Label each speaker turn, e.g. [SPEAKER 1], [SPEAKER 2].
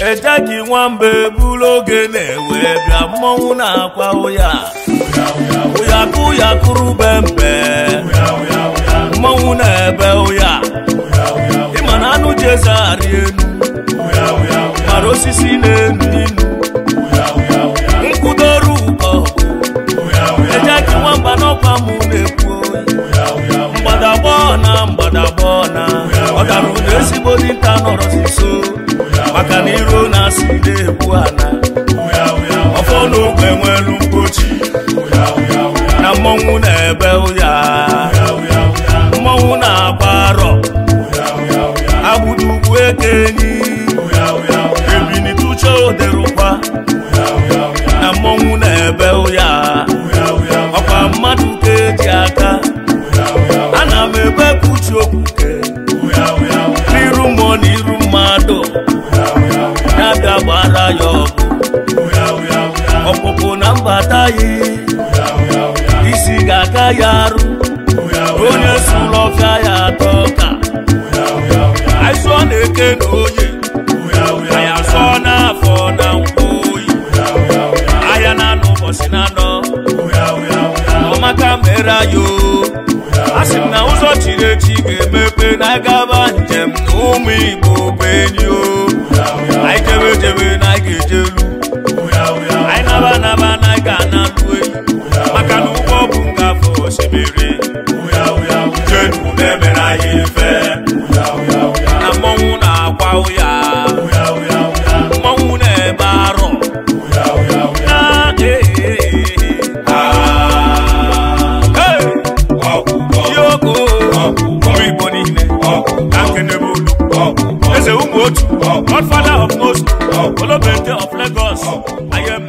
[SPEAKER 1] ejeji nwamba eburu oge na-ewe bịa mmọnwụ na-akwa ụya ụyakụ yakụrụ be mbe mmọnwụ na-ebe ụya ịma na anụ ji eze arị enu mara osisi na-enu inu nkwụdoru ụkọ ejeji nwamba n'ọkwa mụ na-ekwu mgbadagbọ na mgbadagbọ na ọ gara ụda ezigbo dinta nọrọzi so maka na iro na-asị na-ebu ala ọfọ n'ogbe nwere mgbochi na mmọnwụ na-ebe ụya mmọnwụ na-agba arọ agbụrụ ugwu eke enyi ebinituche oderụkwa na mmọnwụ na-ebe ụya ọkwa mmadụ ka eji aka ana m ebe puchi okwuke n'iru mmụọ n'iru mara yọ ọ̀pọ̀pọ̀ na mbata yi isi ga-aka ya arụ onye sulọfịa ya atọ ka aịsọ na-eke na onye aya sọ n'afọ na mkpoyi aya na anọ ụbọchị na anọ ọmaka mere ayo a sị m na ụzọ chiri echi ga-emepe na gaba njem na ụmụ igbo bụ enyi bèrè. Jẹ́nu mẹ́mẹ́ra yé fẹ́. Amọ́hún náà pa òyà. Mọ́hún náà bá rọ̀. Ah. Eze Umotu, Godfather of Most, Olobente of Lagos, Ayem.